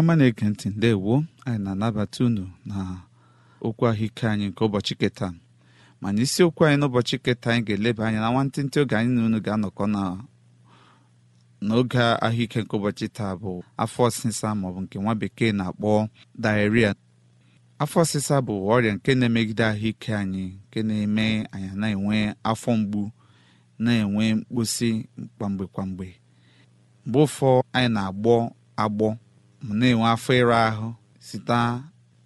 ọma na-ege ntị ndewo anyị na-anabata unu na okwu ahụike anyị nke ụbọchị keta mana isiokwu anyị n'ụbọchị keta anyị ga-eleba anya na nwantịntị oge anyị na unu ga-anọkọ n'oge ahụike nke ụbọchị taa bụ afọ ọsịsa maọbụ nke nwa bekee na-akpọ diarrhea afọ ọsịsa bụ ọrịa nke na-emegide ahụike anyị nke na-eme anyị na-enwe afọ mgbu na-enwe mkposi kwamgbe kwamgbe mgbe ụfọ anyị na-agbọ agbọ ma na-enwe afọ ịra ahụ site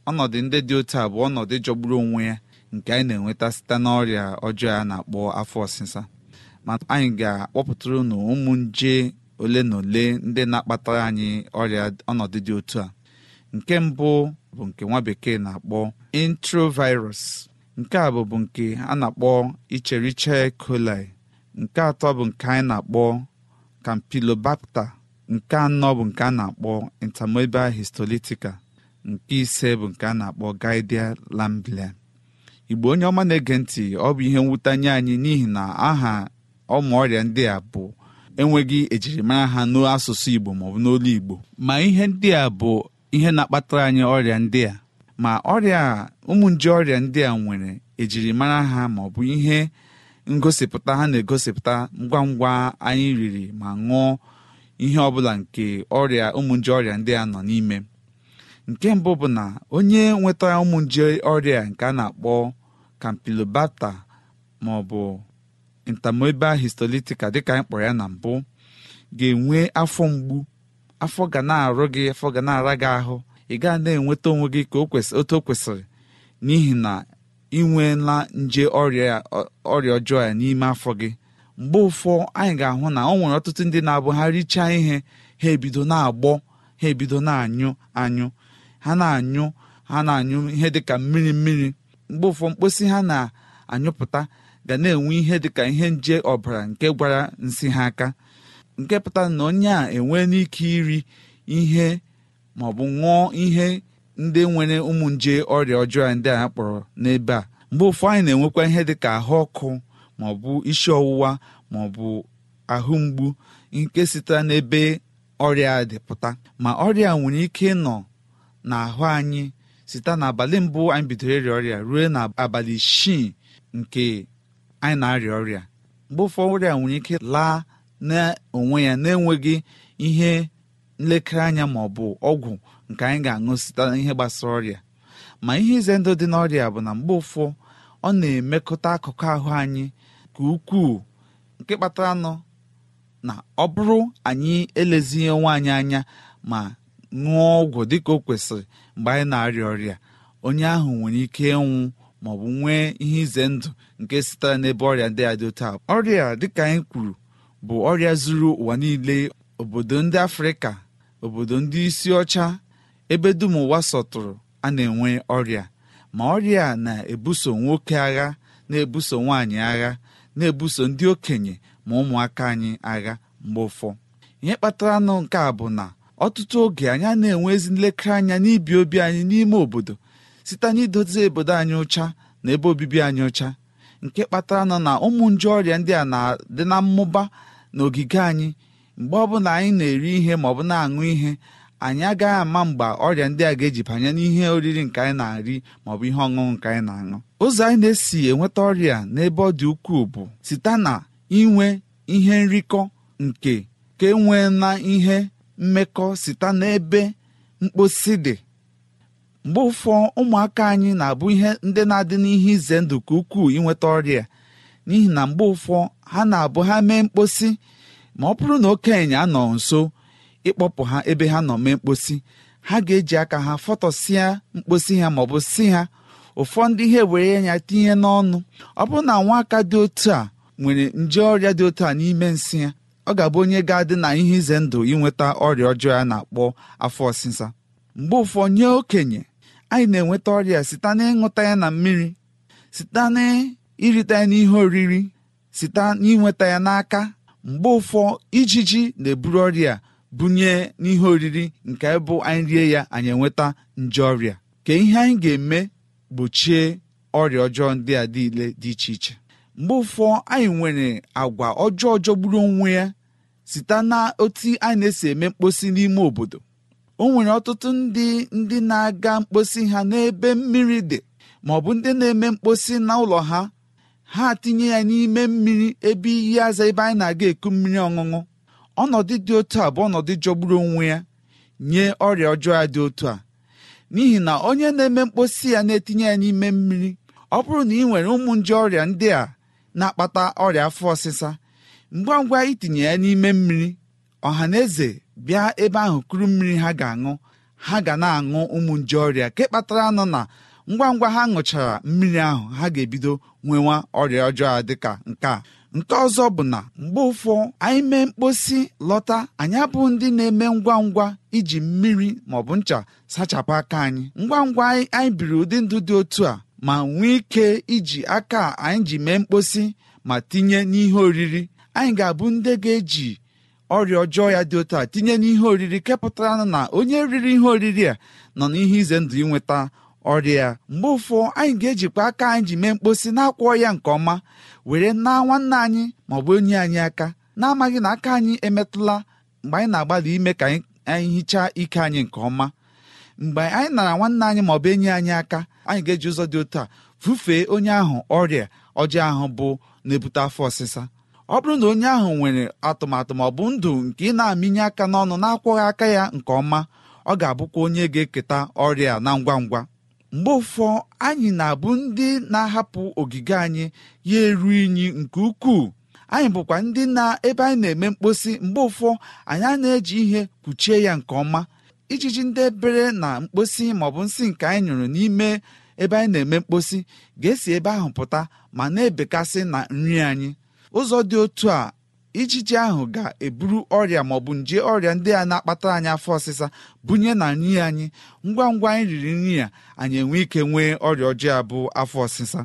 ọnọdụ ndị dị otu a bụ ọnọdụ jọgburu onwe ya nke anyị na-enweta site n'ọrịa ọjọọ a na-akpọ afọ ọsịsa ma anyị ga-akpọpụtara unu ụmụ nje ole na ole ndị na-akpata anyị ọrịa ọnọdụ dị otu a nke mbụ bụ nke nwa bekee na-akpọ introvirus nke a bụbu nke a na-akpọ icheriche coli nke atọ bụ nke anyị na-akpọ campylobacter nke anọ bụ nke a na-akpọ intermobile histolitica nke ise bụ nke a na-akpọ gidia lamblia igbo onye ọma na-ege ntị ọ bụ ihe mwute anya anyị n'ihi na aha ọmụ ọrịa ndị a bụ enweghị ejirimara ha n'asụsụ igbo maọbụ n'olu igbo ma ihe ndị a bụ ihe na-akpatara anyị ọrịa ndị a ma ọrịa ụmụ nje ọrịa ndị a nwere ejirimara ha maọbụ ihe ngosipụta ha na-egosipụta ngwa ngwa anyị riri ma ṅụọ ihe ọ bụla nke ọrịa ụmụ nje ọrịa ndị a nọ n'ime nke mbụ bụ na onye nwetara ụmụ nje ọrịa nke a na-akpọ campylobacter ma ọ bụ dịka anyị kpọrọ ya na mbụ ga-enwe afọ mgbu afọ ga na-arụ gị afọ ga na-ara gị ahụ ị gaa na-enweta onwe gị ka otu o kwesịrị n'ihi na ị nweela nje ọrịa ọjọọ ya n'ime afọ gị mgbe ụfọ anyị ga-ahụ na ọ nwere ọtụtụ ndị na-abụ ha richaa ihe ha ebido na-agbọ ha ebido na-anyụ anyụ ha na-anyụ ha na-anyụ ihe dịka mmiri mmiri mgbe ụfọ mkposi ha na-anyụpụta ga na-enwe ihe dịka ihe nje ọbara nke gwara nsị ha aka nke pụtara na onye a enwee n'ike iri ihe maọbụ ṅụọ ihe ndị nwere ụmụ nje ọrịa ọjọọ ndị a kpọrọ n'ebe a mgbe ụfọ anyị na-enwekwa ihe dịka ahụ ọkụ maọbụ isi ọwụwa maọbụ ahụ mgbu nke sitere n'ebe ọrịa dịpụta ma ọrịa nwere ike nọ n'ahụ anyị site n'abalị mbụ anyị bidoro ịrịa ọrịa ruo n'abalị isii nke anyị na-arịa ọrịa mgbe ụfọdụ ọrịa nwere ike laa n'onwe ya na-enweghị ihe nlekere anya ma ọ bụ ọgwụ nke anyị ga-aṅụ site n'ihe gbasara ọrịa ma ihe ize ndụ dị n'ọrịa bụ na mgbe ụfọ ọ na-emekọta akụkụ ahụ anyị nke ukwuu nke kpatara nọ na ọ bụrụ anyị elezighị nwaanyị anya ma ṅụọ ọgwụ dịka o kwesịrị mgbe anyị na-arịa ọrịa onye ahụ nwere ike ịnwụ bụ nwee ihe ize ndụ nke sitere n'ebe ọrịa ndị a otu ọrịa dịka anyị kwuru bụ ọrịa zuru ụwa niile obodo ndị afrịka obodo ndị isi ọcha ebe dum ụwa sọtụrụ a na-enwe ọrịa ma ọrịa na-ebuso nwoke agha na-ebuso nwaanyị agha na-ebuso ndị okenye ma ụmụaka anyị agha mgbe ụfọ ihe kpatara nụ nke a bụ na ọtụtụ oge anyị na-enwe ezi nlekere anya n'ibi obi anyị n'ime obodo site n'idozi obodo anyị ụcha na ebe obibi anyị ụcha nke kpatara nọ na ụmụ nje ọrịa ndị a na-adị na mmụba na ogige anyị mgbe ọbụla anyị na-eri ihe bụ na-aṅụ ihe anyị agaghị ama mgbe ọrịa ndị a ga-eji banye n'ihe oriri nke anyị na-ari maọbụ ihe ọṅụṅụ nke anyị na-aṅụ ụzọ anyị na-esi enweta ọrịa n'ebe ọ dị ukwuu bụ site na inwe ihe nrikọ nke ka enwee na ihe mmekọ site n'ebe mkposi dị mgbe ụfọ ụmụaka anyị na-abụ ihe ndị na-adị n'ihe ize ndụ ka ukwuu inweta ọrịa n'ihi na mgbe ụfọ ha na-abụ ha mee mkposi ma ọ bụrụ na okenye anọ nso ịkpọpụ ha ebe ha nọ mee mkposi ha ga-eji aka ha fọtọsịa mkposi ha maọbụ si ha ụfọdụ ihe were ya tinye n'ọnụ ọ bụrụ na nwa aka dị otu a nwere nje ọrịa dị otu a n'ime nsị ya ọ ga-abụ onye ga-adị na ihe ize ndụ inweta ọrịa ọjọọ ya na-akpọ afọ ọsịsa mgbe ụfọ nye okenye anyị na-enweta ọrịa site n'ịṅụta ya na mmiri site n'irite ya n'ihe oriri site n'inweta ya n'aka mgbe ụfọ ijiji na-eburu ọrịa bunye n'ihe oriri nke bụ anyị rie ya anyị enweta nje ọrịa ka ihe anyị ga-eme gbochie ọrịa ọjọọ ndị a niile dị iche iche mgbe ụfọ anyị nwere agwa ọjọọ jọgburu onwe ya site na otu anyị na-esi eme mkposi n'ime obodo o nwere ọtụtụ ndị ndị na-aga mkposi ha n'ebe mmiri dị ma ọ bụ ndị na-eme mkposi na ụlọ ha ha tinye ya n'ime mmiri ebe iyi aza ebe anyị na-aga eku mmiri ọṅụṅụ ọnọdụ dị otu a bụ ọnọdụ jọgburu onwe ya nye ọrịa ọjọọ ya dị otu a n'ihi na onye na-eme mkposi ya na-etinye ya n'ime mmiri ọ bụrụ na ị nwere ụmụ nje ọrịa ndị a na-akpata ọrịa afọ ọsịsa ngwa ngwa itinye ya n'ime mmiri ọha na eze bịa ebe ahụ kuru mmiri ha ga-aṅụ ha ga na-aṅụ ụmụ nje ọrịa nke kpatara nọ na ngwa ngwa ha ṅụchara mmiri ahụ ha ga-ebido nwewa ọrịa ọjọọ dịka nke a nke ọzọ bụ na mgbe ụfọ anyị mee mkposi lọta anyị abụ ndị na-eme ngwa ngwa iji mmiri bụ ncha sachapụ aka anyị ngwa ngwa anyị biri ụdị ndụ dị otu a ma nwee ike iji aka anyị ji mee mkposi ma tinye n'ihe oriri anyị ga-abụ ndị ga-eji ọrịa ọjọọ ya dị otu a tinye n'ihe oriri kepụtara na onye riri ihe oriri a nọ n'ihe ize ndụ ịnweta ọrịa mgbe ụfọ anyị ga-ejikwa aka anyị ji mee mkposi na-akwọ ya nke ọma were naa nwanne anyị maọbụ onye anyị aka na-amaghị na aka anyị emetụla mgbe anyị na-agbalị ime ka anyị hichaa ike anyị nke ọma mgbe anyị nara nwanne anyị maọbụ enyi anyị aka anyị ga-eji ụzọ dị otu a fufee onye ahụ ọrịa ọjọọ ahụ bụ na-ebute afọ ọsịsa ọ bụrụ na onye ahụ nwere atụmatụ maọbụ ndụ nke ị na-amịnye aka n'ọnụ na-akwọghị aka ya nke ọma ọ ga-abụkwa onye ga-eketa ọrịa na ngwa ngwa mgbe ụfọ anyị na-abụ ndị na-ahapụ ogige anyị ya eru inyi nke ukwuu anyị bụkwa ndị na ebe anyị na-eme mkposi mgbe ụfọ anyị na-eji ihe kpuchie ya nke ọma ijiji ndị ebere na mkposi maọbụ nsị nke anyị nyụrụ n'ime ebe anyị na-eme mkposi ga-esi ebe ahụ pụta ma na-ebekasị na nri anyị ụzọ dị otu a ijiji ahụ ga-eburu ọrịa bụ nje ọrịa ndị a na akpata anyị afọ ọsịsa bunye na nri anyị ngwa ngwa anyị riri nri a anyị enwe ike nwee ọrịa ọjọọ abụ afọ ọsịsa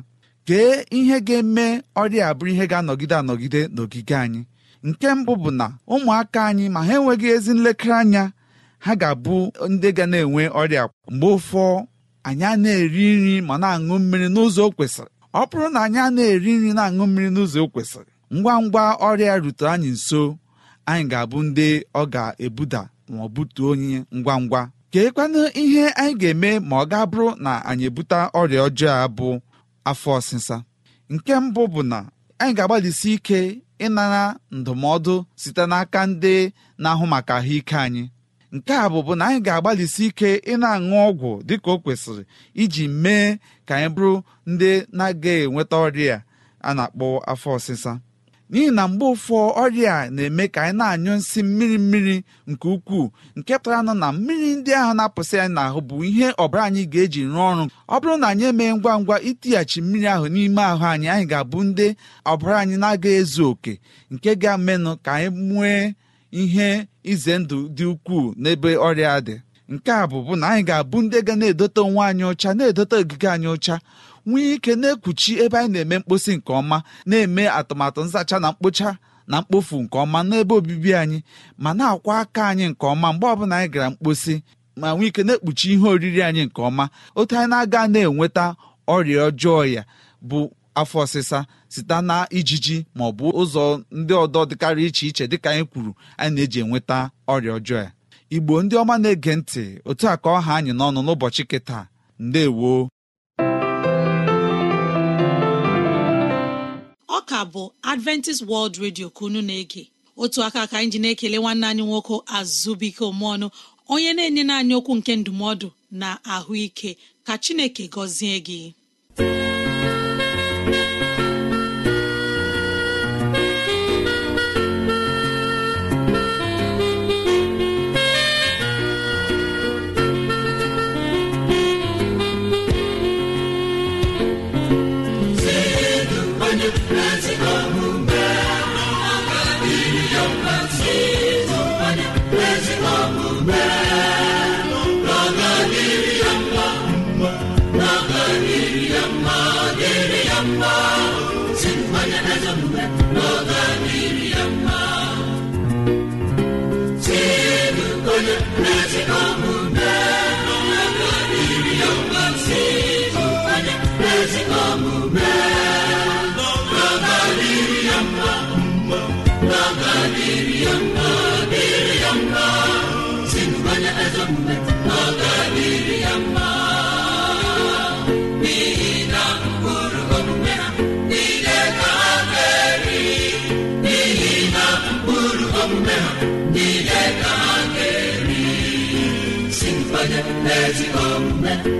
kee ihe ga-eme ọrịa abụ ihe ga-anọgide anọgide n'ogige anyị nke mbụ bụ na ụmụaka anyị ma ha enweghị ezi nlekere anya ha ga-abụ ndị ga na-enwe ọrịa mgbe ụfọ anyị na-eri nri ma na-aṅụ mmiri n'ụzọ o kwesịrị ọ bụrụ na anyị a na-eri nri na-aṅụ mmiri n'ụzọ o kwesịrị ngwa ngwa ọrịa rute anyị nso anyị ga-abụ ndị ọ ga-ebuda ma ọ butuo onye ngwa ngwa keekwanụ ihe anyị ga-eme ma ọ ga-abụrụ na anyị ebute ọrịa ọjọọ a bụ afọ ọsịsa nke mbụ bụ na anyị ga-agbalịsi ike ịnara ndụmọdụ site n'aka ndị na-ahụ maka ahụike anyị nke a bụbụ na anyị ga-agbalịsi ike ịna aṅụ ọgwụ dịka o kwesịrị iji mee ka anyị bụrụ ndị na aga enweta ọrịa a na-akpọ afọ ọsịsa n'ihi na mgbe ụfọ ọrịa na-eme ka anyị na-anyụ nsị mmiri mmiri nke ukwuu nke pụtara nụ na mmiri ndị ahụ na-apụsị anyị n'ahụ bụ ihe ọbara anyị ga-eji rụọ ọrụ ọ bụrụ na anyị emee ngwa ngwa itighachi mmiri ahụ n'ime ahụ anyị anyị ga-abụ ndị ọbara anyị na aga ezu oke nke ga-amenụ ka anyị nwee ihe ize ndụ dị ukwuu n'ebe ọrịa dị nke a bụ bụ na anyị ga-abụ ndị ga na-edote onwe anyị ọcha na-edote ogige anyị ọcha nwee ike na-ekpuchi ebe anyị na-eme mkposi nke ọma na-eme atụmatụ nzacha na mkpocha na mkpofu nke ọma n'ebe obibi anyị ma na-akwa aka anyị nke ọma mgbe ọbụla anyị gara mkposi ma nwee ike na-ekpuchi ihe oriri anyị nke ọma otu anyị na-aga na-enweta ọrịa ọjọọ ya bụ afọ ọsịsa site na ijiji ma ọ bụ ụzọ ndị ọdọ dịkarị iche iche dịka anyị kwuru anyị na-eji enweta ọrịa ọjọọ ya igbo ndị ọma na-ege ntị otu a ka ọha anyị n'ọnụ n'ụbọchị kịta ndewo ka bụ adventist world radio ka unu na-ege otu aka ka anyị na-ekele nwanne anyị nwoke azụbụike omeọnụ onye na-enye anyị okwu nke ndụmọdụ na ahụike ka chineke gọzie gị ezi omume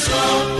nsọ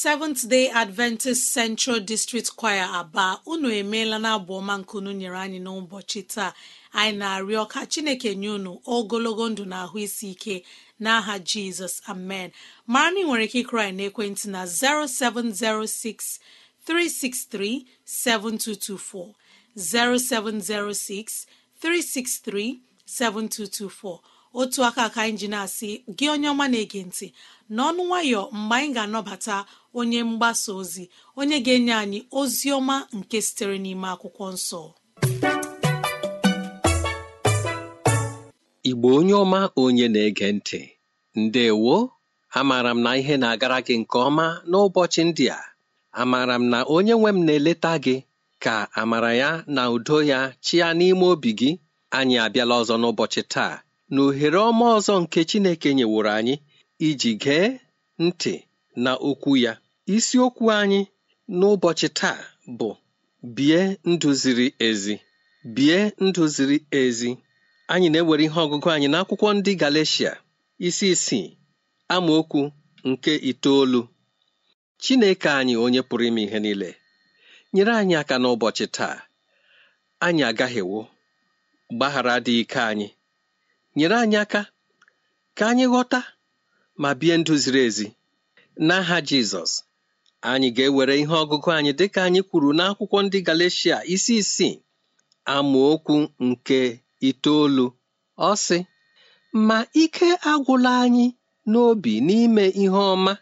seventh day adventist central district choir aba unu emeela na abụ ọma nkunu nyere anyị n'ụbọchị taa anyị na-arịọ ka chineke nye unu ogologo ndụ na ahụ isi ike n'aha jizọs amen mara na ị nwere ike ịkụrụ n'ekwentị na 0706 363 7224 0706 363 7224 otu aka ka anyị na-asị gị onye ọma na-ege ntị n'ọnụ nwayọ mgbe anyị ga-anọbata onye mgbasa ozi onye ga-enye anyị ozi ọma nke sitere n'ime akwụkwọ nsọ igbo onye ọma onye na-ege ntị ndewo amaara m na ihe na-agara gị nke ọma n'ụbọchị ndị a amaara m na onye nwe m na-eleta gị ka amara ya na udo ya chịa n'ime obi gị anyị abịala ọzọ n'ụbọchị taa na ohere ọma ọzọ nke Chineke nyeworo anyị iji gee ntị na okwu ya isiokwu anyị n'ụbọchị taa bụ bie ndụ ziri ezi bie ndụ ziri ezi anyị na-ewere ihe ọgụgụ anyị n'akwụkwọ ndị Galeshia isi isii amaokwu nke itoolu Chineke anyị onye pụrụ ime ihe niile nyere anyị aka n'ụbọchị taa anyị agaghewo gbaghara dị ike anyị nyere anyị aka ka anyị ghọta ma bie ndụ ziri ezi n'aha Jizọs anyị ga-ewere ihe ọgụgụ anyị dịka anyị kwuru n'akwụkwọ ndị Galeshia isi isii amaokwu nke itoolu ọ sị ma ike agwụla anyị n'obi n'ime ihe ọma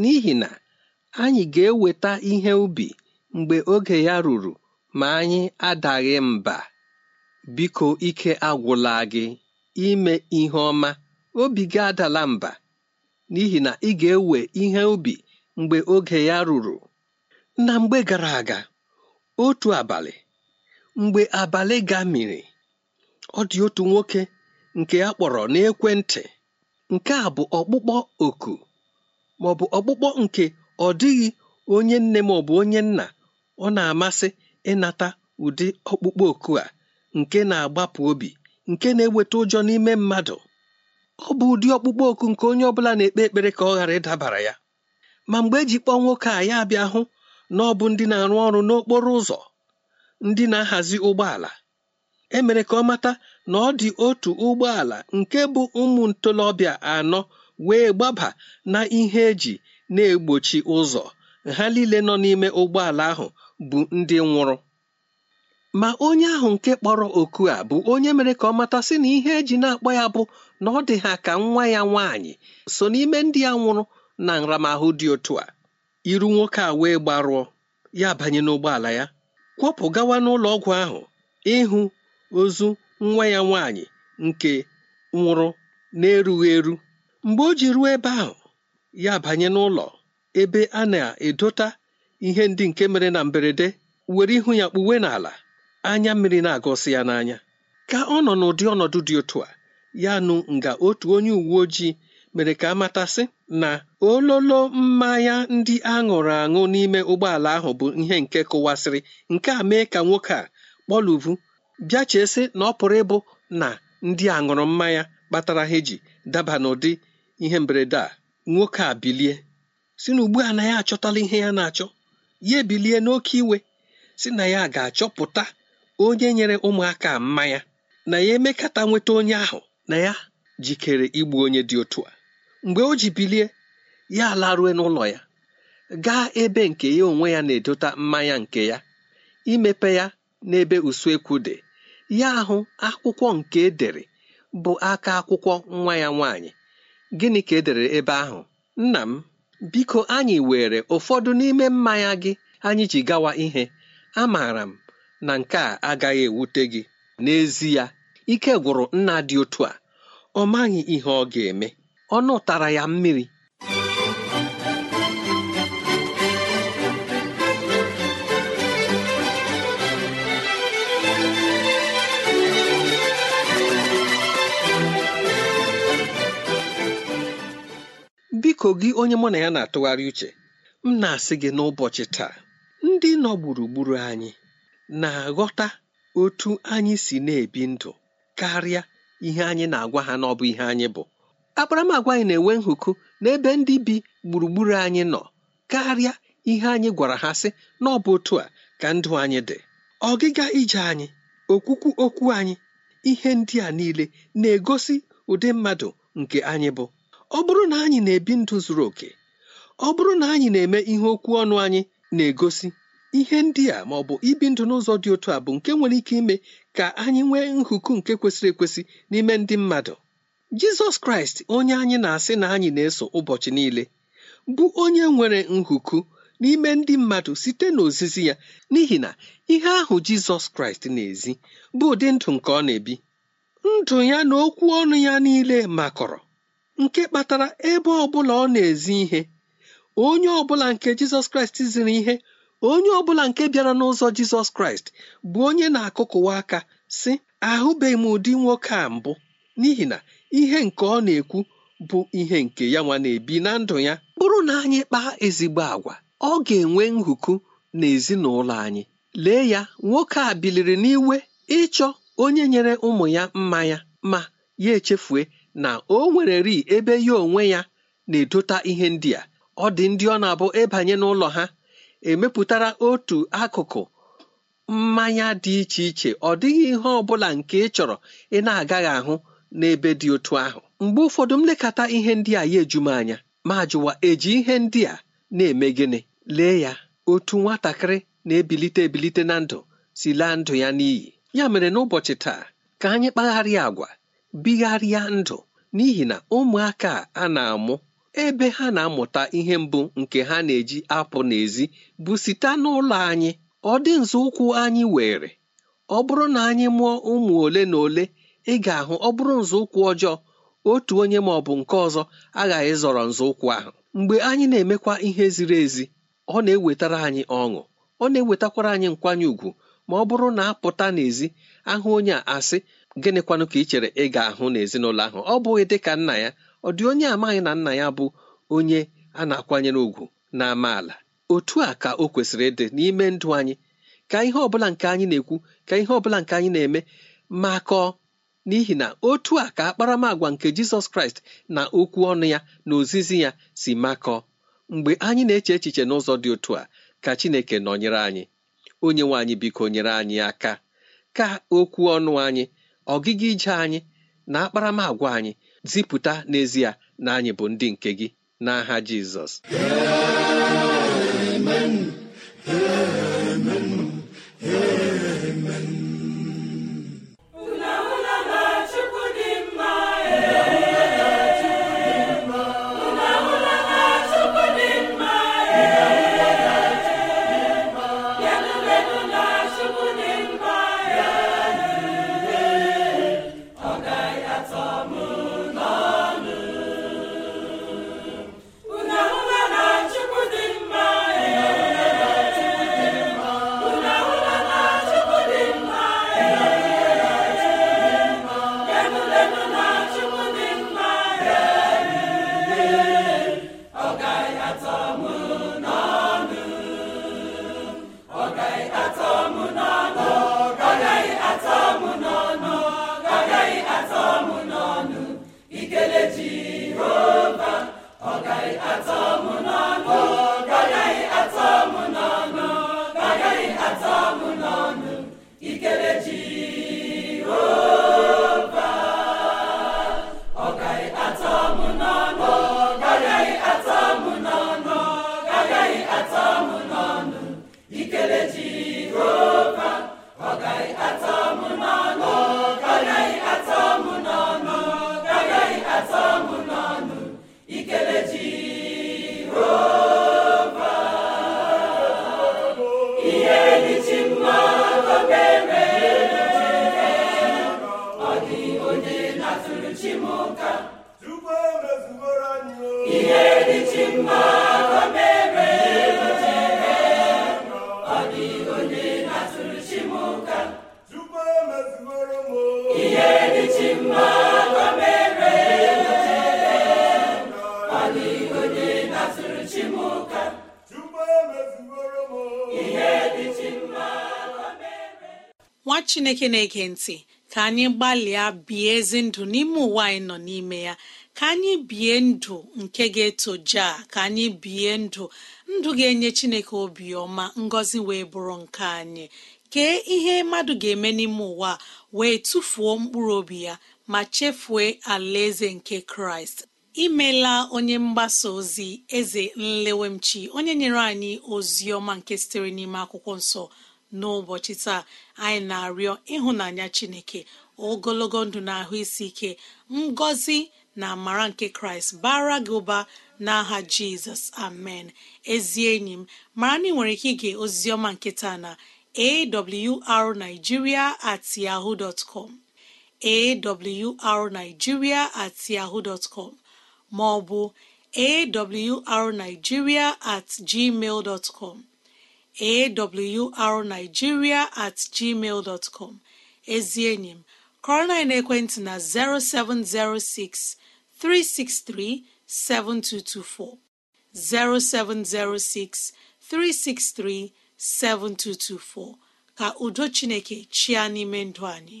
n'ihi na anyị ga-eweta ihe ubi mgbe oge ya ruru ma anyị adaghị mba biko ike agwụla gị ime ihe ọma obi gị adala mba n'ihi na ị ga-ewe ihe ubi mgbe oge ya ruru na mgbe gara aga otu abalị mgbe abalị ga gamiri ọ dị otu nwoke nke a kpọrọ n'ekwentị nke a bụ ọkpụkpọ oku ma ọ bụ ọkpụkpọ nke ọ dịghị onye nne ma ọ bụ onye nna ọ na-amasị ịnata ụdị ọkpụkpọ oku a nke na-agbapụ obi nke na-eweta ụjọ n'ime mmadụ ọ bụ ụdị ọkpụkpọ oku nke onye ọbụla na-ekpe ekpere ka ọ ghara ịdabara ya ma mgbe eji kpọọ nwoke a ya bịa hụ na ọ bụ ndị na-arụ ọrụ n'okporo ụzọ ndị na-ahazi ụgbọala emere ka ọ mata na ọ dị otu ụgbọala nke bụ ụmụ ntolobịa anọ wee gbaba na ihe eji na-egbochi ụzọ ha niile nọ n'ime ụgbọala ahụ bụ ndị nwụrụ ma onye ahụ nke kpọrọ oku a bụ onye mere ka ọ mata sị na ihe eji na-akpọ ya bụ na ọ dị ha ka nwa ya nwaanyị so n'ime ndị ya nwụrụ na nramahụ dị otu a iru nwoke a wee gbarụọ ya banye n'ụgbọala ya kwọpụ gawa n'ụlọ ọgwụ ahụ ịhụ ozu nwa ya nwaanyị nke nwụrụ na-erughị eru mgbe o ji ruo ebe ahụ ya banye n'ụlọ ebe a na-edota ihe ndị nke mere na mberede were ihu ya kpuwe n'ala anya mmiri na agosi ya n'anya ka ọ nọ n'ụdị ọnọdụ dị otu a ya nụ nga otu onye uwe ojii mere ka amatasị na ololo mmanya ndị aṅụrụ aṅụ n'ime ụgbọala ahụ bụ ihe nke kụwasịrị nke a mee ka nwoke a kpọluvu bịa chesị na ọ pụrụ ịbụ na ndị aṅụrụ mmanya kpatara ha eji daba n'ụdị ihe mberede a nwoke a bilie si na ugbu a na ya achọtala ihe ya na-achọ ya ebilie n'oke iwe si na ya ga-achọpụta onye nyere ụmụaka mmanya na ya emekata nweta onye ahụ na ya jikere igbu onye dị otu a mgbe o ji bilie ya larue n'ụlọ ya gaa ebe nke ya onwe ya na-edota mmanya nke ya imepe ya n'ebe usuekwu dị ya ahụ akwụkwọ nke edere bụ aka akwụkwọ nwa ya nwaanyị gịnị ka edere ebe ahụ nna m biko anyị were ụfọdụ n'ime mmanya gị anyị ji gawa ihe amaara m na nke a agaghị ewute gị n'ezie ike gwụrụ nna dị otu a ọ maghị ihe ọ ga-eme Ọ nụtara ya mmiri biko gị onye mụ na ya na-atụgharị uche m na-asị gị n'ụbọchị taa ndị nọ gburugburu anyị na-aghọta otu anyị si na-ebi ndụ karịa ihe anyị na-agwa ha n'ọbụ ihe anyị bụ akparamagwa anyị na-enwe nhụkụ n'ebe ndị bi gburugburu anyị nọ karịa ihe anyị gwara ha sị na ọ otu a ka ndụ anyị dị ọgịga ije anyị okwukwu okwu anyị ihe ndị a niile na-egosi ụdị mmadụ nke anyị bụ ọ bụrụ na anyị na-ebi ndụ zuru oke ọ bụrụ na anyị na-eme ihe okwu ọnụ anyị na-egosi ihe ndị a ma ọ bụ ibi ndụ n'ụzọ dị otu a bụ nke nwere ike ime ka anyị nwee nhuku nke kwesịrị ekwesị n'ime ndị mmadụ jizọs kraịst onye anyị na-asị na anyị na-eso ụbọchị niile bụ onye nwere nhuku n'ime ndị mmadụ site n'ozizi ya n'ihi na ihe ahụ jizọs kraịst na-ezi bụ ụdị ndụ nke ọ na-ebi ndụ ya na okwu ọnụ ya niile makọrọ nke kpatara ebe ọ bụla ọ na-ezi ihe onye ọ bụla nke jizọs kraịst ziri ihe onye ọ bụla nke bịara n'ụzọ Jizọs Kraịst bụ onye na-akụkụwa aka sị ahụbeghị m ụdị nwoke a mbụ n'ihi na ihe nke ọ na-ekwu bụ ihe nke ya nwa na-ebi na ndụ ya bụrụ na anyị kpaa ezigbo agwa ọ ga-enwe nhuku na ezinụlọ anyị lee ya nwoke a biliri n'iwe ịchọ onye nyere ụmụ ya mmanya ma ya echefue na o nwere ri ebe ya onwe ya na-edota ihe ndị a ọ dị ndị ọ na-abụ ịbanye n'ụlọ ha emepụtara otu akụkụ mmanya dị iche iche ọ dịghị ihe ọ bụla nke ị chọrọ ị na-agaghị ahụ n'ebe dị otu ahụ mgbe ụfọdụ m lekata ihe ndị a ya eju anya ma jụwa eji ihe ndị a na-eme gịnị lee ya otu nwatakịrị na-ebilite ebilite na ndụ si laa ndụ ya n'iyi ya mere n'ụbọchị taa ka anyị kpagharịa agwa bigharịa ndụ n'ihi na ụmụaka a na-amụ ebe ha na-amụta ihe mbụ nke ha na-eji apụ n'ezi bụ site n'ụlọ anyị ọ dị nzọụkwụ anyị were ọ bụrụ na anyị mụọ ụmụ ole na ole ị ga-ahụ ọ bụrụ nzọụkwụ ọjọọ otu onye ma ọ bụ nke ọzọ aghaghị zọrọ nzọụkwụ ahụ mgbe anyị na-emekwa ihe ziri ezi ọ na-ewetara anyị ọṅụ ọ na-ewetakwara anyị nkwanye ùgwù ma ọ bụrụ na apụta n'ezi ahụ onye a asị gịnịkwanụ ka ị chere ị ga-ahụ n'ezinụlọ ahụ ọ bụghị dịka nna ya ọ dị onye amaghị na nna ya bụ onye a na-akwanyere ùgwù na amaala otu a ka o kwesịrị ịdị n'ime ndụ anyị ka ihe ọbụla nke anyị na-ekwu ka ihe ọbụla nke anyị na-eme makọọ n'ihi na otu a ka akparamagwa nke Jizọs Kraịst na okwu ọnụ ya na ozizi ya si makọọ mgbe anyị na-eche echiche n'ụzọ dị otu a ka Chineke nọnyere anyị onye nwe anyị biko nyere anyị aka ka okwu ọnụ anyị ọgịga ije anyị na akparamagwa anyị zipụta n'ezie na anyị bụ ndị nke gị n'aha Jizọs nwa chineke na-ege ntị ka anyị gbalịa bie ezi ndụ n'ime ụwa anyị nọ n'ime ya ka anyị bie ndụ nke ga-etoja ka anyị bie ndụ ndụ ga-enye chineke obiọma ngọzi wee bụrụ nke anyị kee ihe mmadụ ga-eme n'ime ụwa wee tụfuo mkpụrụ obi ya ma chefue alaeze nke kraịst imela onye mgbasa ozi eze nlewemchi onye nyere anyị ozi ọma nke sitere n'ime akwụkwọ nsọ n'ụbọchị taa anyị na-arịọ ịhụnanya chineke ogologo ndụ na ahụ isi ike ngọzi na amara nke kraịst bara gị ụba n'aha jizọs amen ezi enyi m mara na ị nwere ike ige oziziọma nke na awrnigeria at yahoo dot com awrnigeria at yahoo dot com ma ọ bụ awrnigeria at gmail dot awrnigeria at gmail dọtcọm ezi enyi m kọrọna ekwentị na 0706 363 7224 0706 363 7224 ka udo chineke chịa n'ime ndụ anyị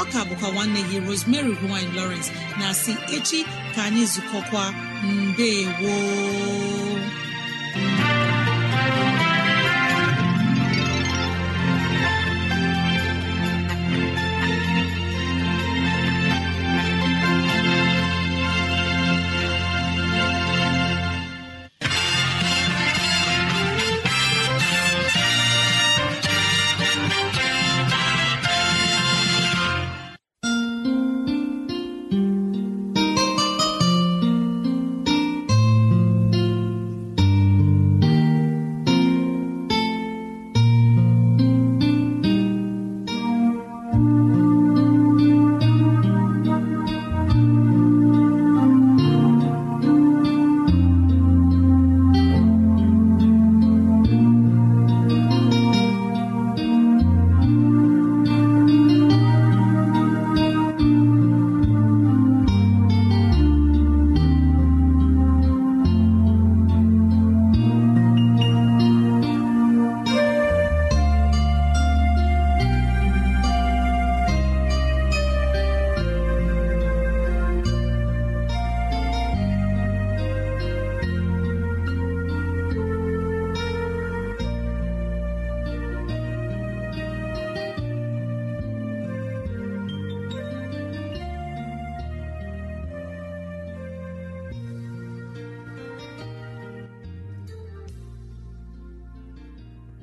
ọ ka bụkwa nwanne gị Rosemary gine Lawrence na si echi ka anyị zukọkwa mbe woo